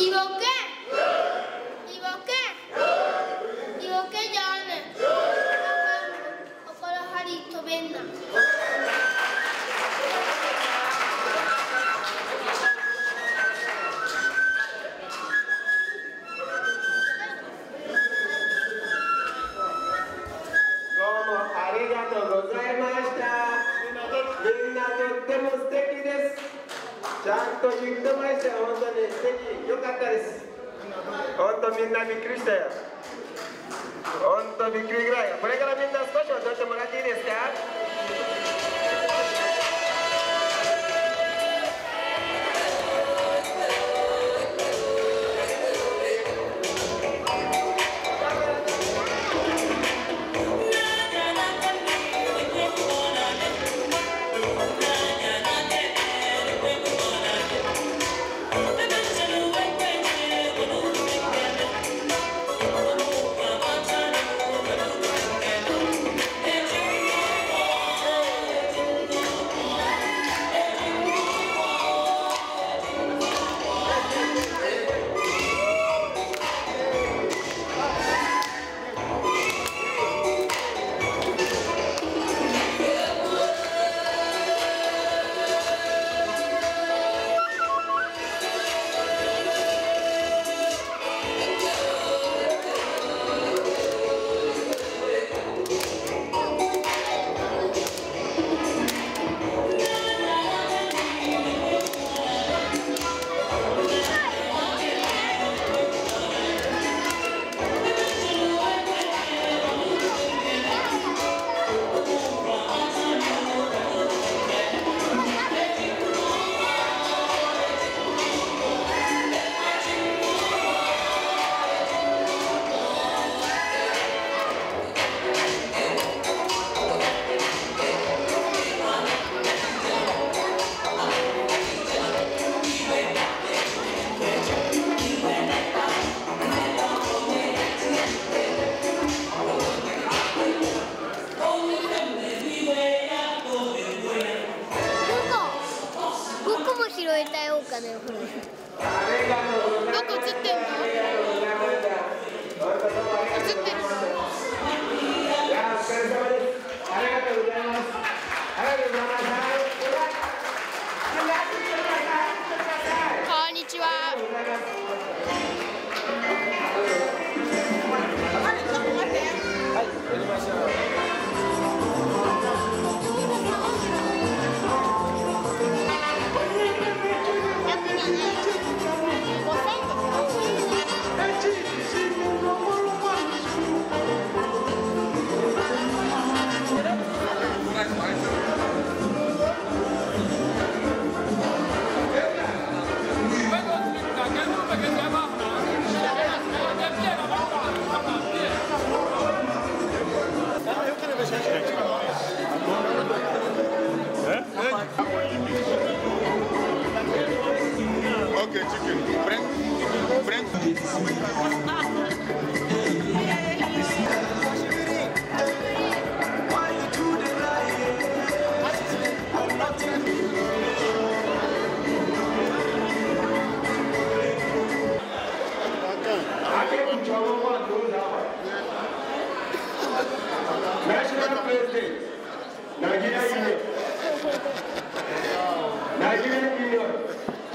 equivoqué.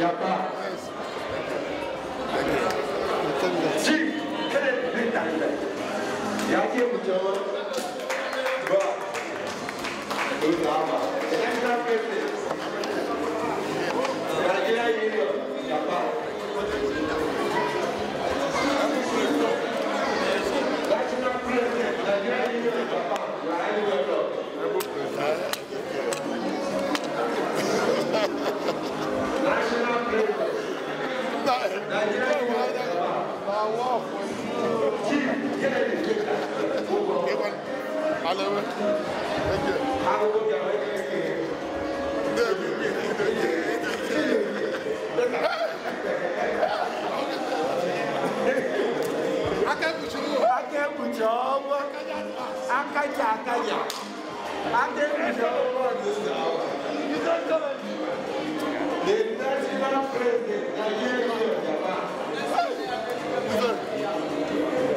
Japa. Thank you.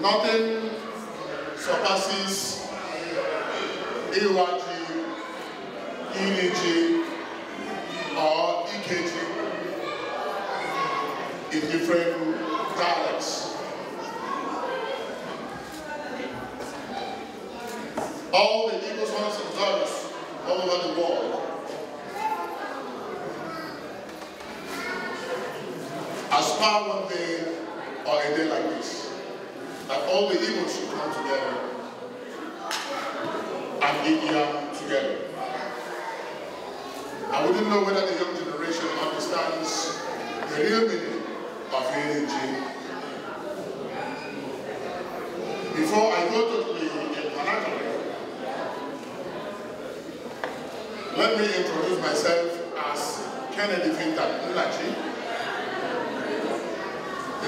Nothing surpasses AYG, energy or EKG in different dialects. All the Eagle Sons and daughters all over the world aspire one day or a day like this all the evils should come together and be young together. I wouldn't know whether the young generation understands the real meaning of energy. Before I go to the vernacular, let me introduce myself as Kennedy Vinta Mulachi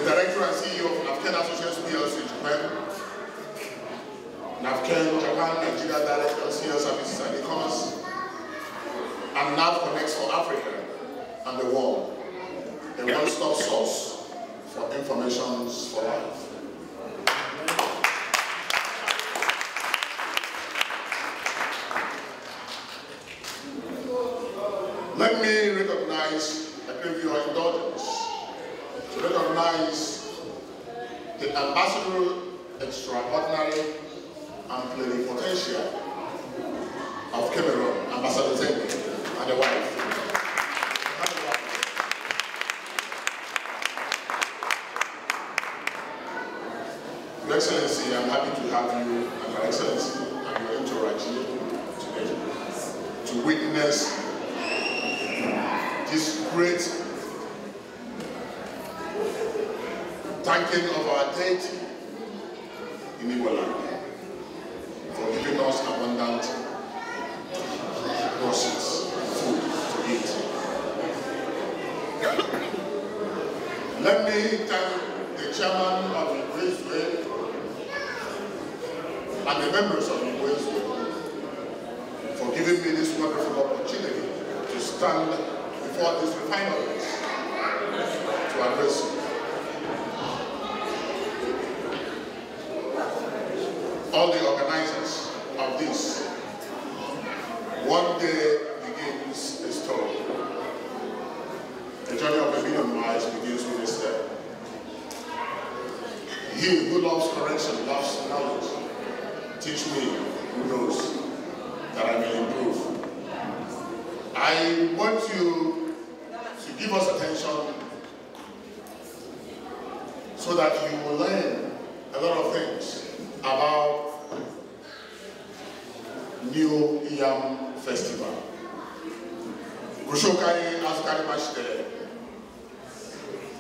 the director and CEO of Navken Associates PLC Japan, Navken Japan Nigeria Director of Senior Services and E-Commerce, and NAV Connects for Africa and the world, a one-stop source for information for life. the ambassador extraordinary and plenipotentiary of Cameroon, Ambassador Zengwe, and the wife. Your Excellency, I'm happy to have you thanking of our deity in Igbo for giving us abundant resources, food to eat. Let me thank the chairman of the Graceway and the members of the Graceway for giving me this wonderful opportunity to stand before this refinery to address you. teach me, who knows, that I may improve. I want you to give us attention so that you will learn a lot of things about New Yam Festival. Gushokai Afghan Master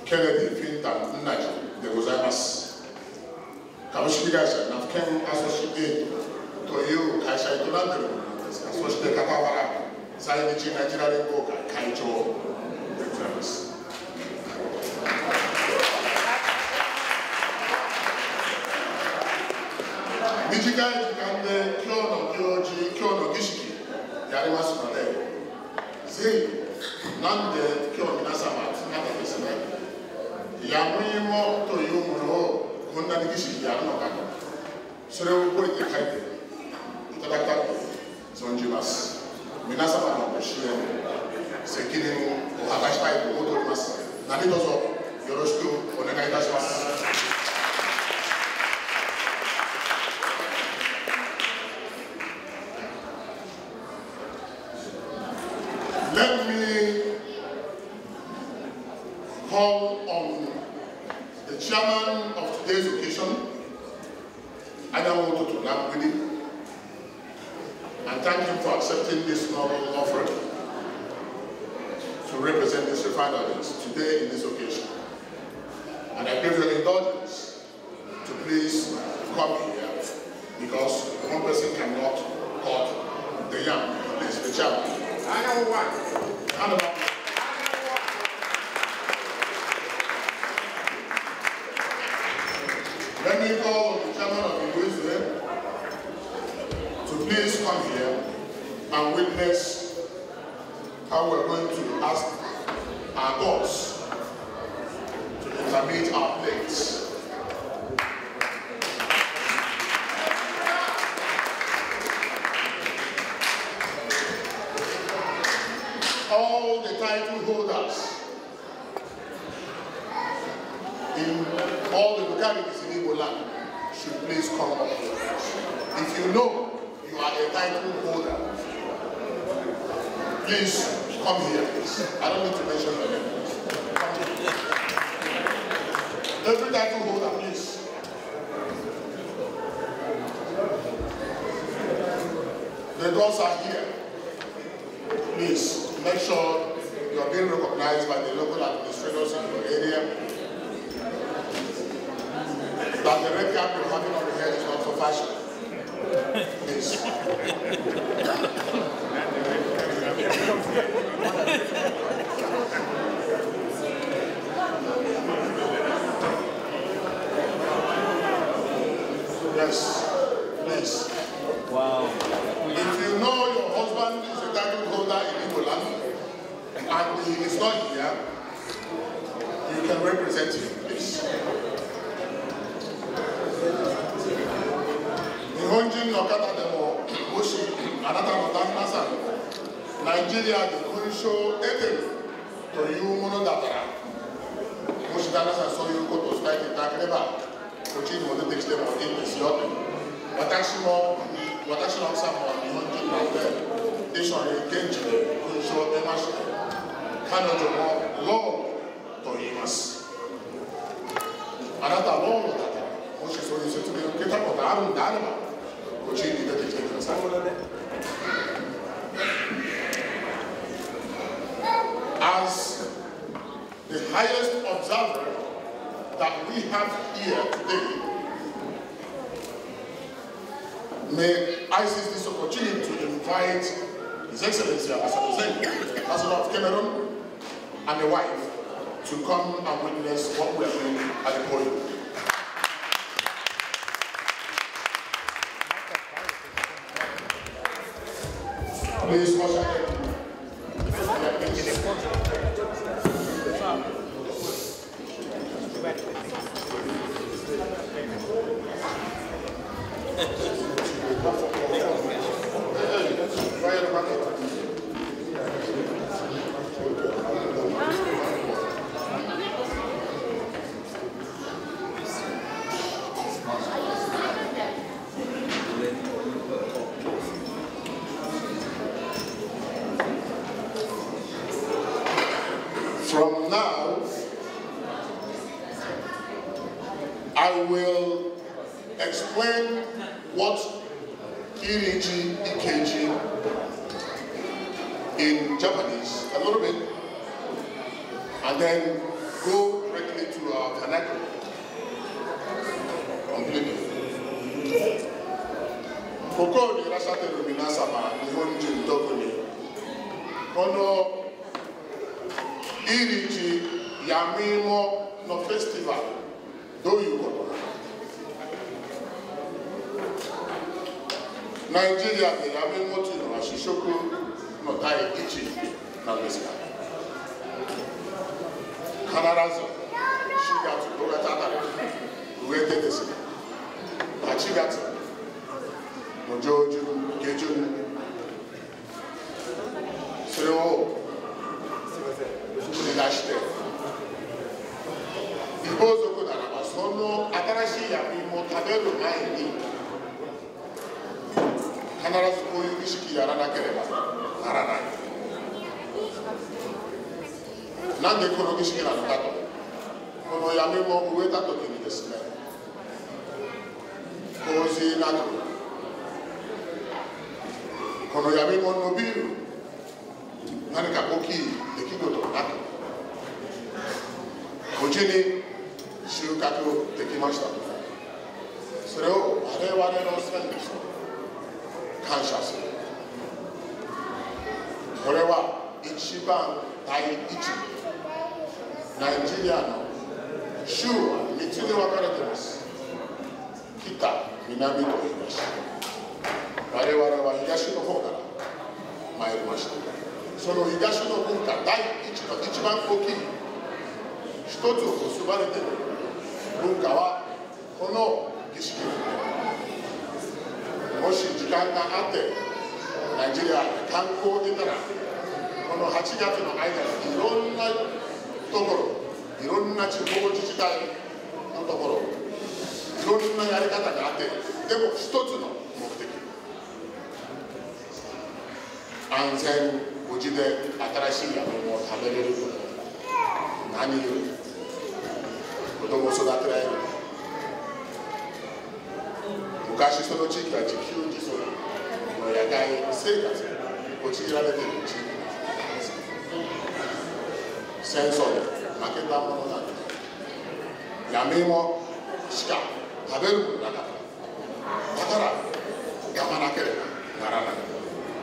Kennedy Fintan Naji, the Gozaimas. 株式会社ナフケンアソシエイトという会社営んでいるものなんですがそして傍ら在日ナチュラル連合会会長でございます。短い時間で今日の行事、今日の儀式やりますので、ぜひ、なんで今日皆様集まってですね、やむいもこんなに儀式やるのかとそれを覚えて書いていただきたく存じます皆様のご支援責任を果たしたいと思っております何卒よろしくお願いいたします how we're going to ask our gods to intermit our plates. All the title holders in all the localities in Ebola should please come up. If you know you are a title holder, please Come here, please. I don't need to mention the name. Every title holder, please. The doors are here. Please, make sure you are being recognized by the local administrators in your area. That the red cap you're having on your head is not for fashion. yes, please. Wow. If you know your husband is a title holder in Igbo and he is not here, you can represent him. ジュリアで勲章を得てるというものだからもし旦那さんそういうことを伝えていただければこっちにも出てきてもいいんですよと私も私の奥さんも日本人なので一緒に現地で勲章を出まして彼女もローンと言いますあなたはローンだと、もしそういう説明を受けたことあるんであればこっちに出てきてください highest observer that we have here today. May I seize this opportunity to invite His Excellency Ambassador Ambassador of Cameroon, and the wife to come and witness what we are doing at the podium. Please, explain what Iriji EKG in Japanese a little bit, and then go directly to our uh, Kanako. Completely. Koko ni rasate lumina sama ni honji mtoko ni. Kono Iriji ya mimo no festival do you ナイジェリアでやめるののは主食の第一なんですが必ず4月5月あたり植えてですね8月の上旬下旬それを取り出して異邦族ならばその新しい焼きを食べる前に必ずこういう儀式やらなければならないなんでこの儀式なのかとこの闇も植えた時にですね洪水なくこの闇も伸びる何か大きい出来事がなく無事に収穫できましたそれを我々のせいにした感謝するこれは一番第一ナイジリアの州は3つに分かれています北南と東我々は東の方から参りましたその東の文化第一の一番大きい一つを結ばれている文化はこの儀式もし時間があってナイジリア観光に出たらこの8月の間にいろんなところいろんな地方自治体のところいろんなやり方があってでも一つの目的安全無事で新しい山芋を食べれること何より子供を育てられる昔その地域は自給自足の野外生活に陥られている地域です戦争で負けたものなんです闇もしか食べるものなかっただからやまなければならない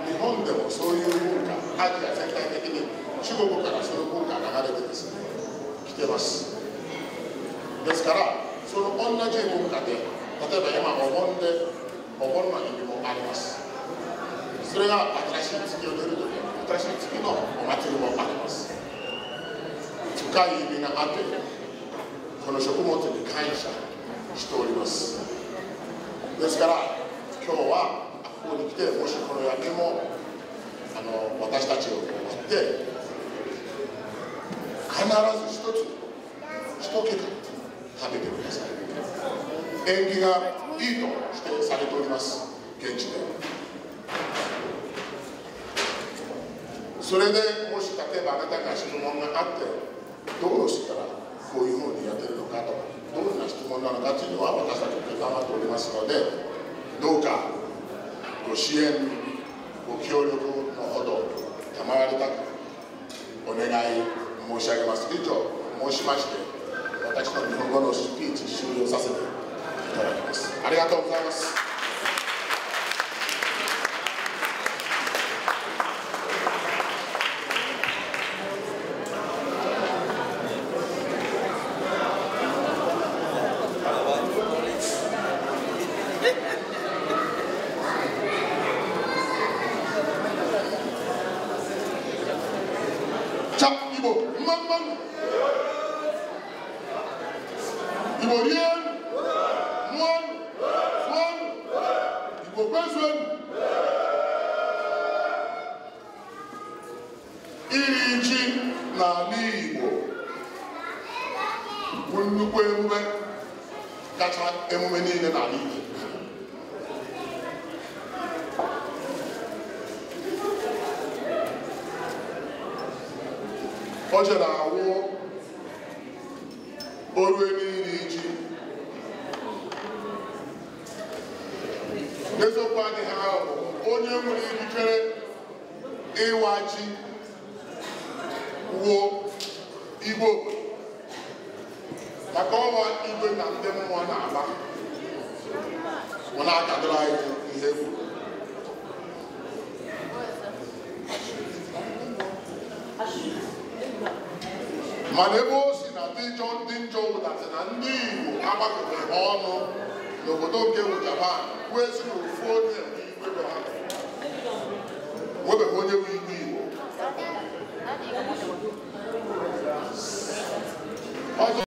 日本でもそういう文化アジア全体的に中国からその文化が流れてですね来てますですからその同じ文化で例えば今お盆でお盆の意味もありますそれが新しい月を出るとき新しい月のお祭りもあります深い意味があってこの食物に感謝しておりますですから今日はここに来てもしこの夜景もあの私たちを待って必ず一つ一桁食べて縁起がいいと指定されております現地でそれでもし例えばあなたが質問があってどうしたらこういうふうにやってるのかとどんな質問なのかというのは私たちも頑張っておりますのでどうかご支援ご協力のほど賜りたくお願い申し上げます以上申しまして私の日本語のスピーチ終了させてといますありがとうございます gacha emume niile n'ala igbo o jere awụ oru iri ji n'eziokwu adịghị ahụ onye nwere ikikere ịwa ji wuo igwe obodo maka ọnwa igwe na ndị mmụọ na-agba mụ na-akadoro anyị ihe kwuru mana ebe o si na ndị njọ ndị njọ wụdatị na ndị igbo agbakọtara ọnụ n'obodo nke bụ japan wee si na ofu onye webeghị onye bụ igwe igbo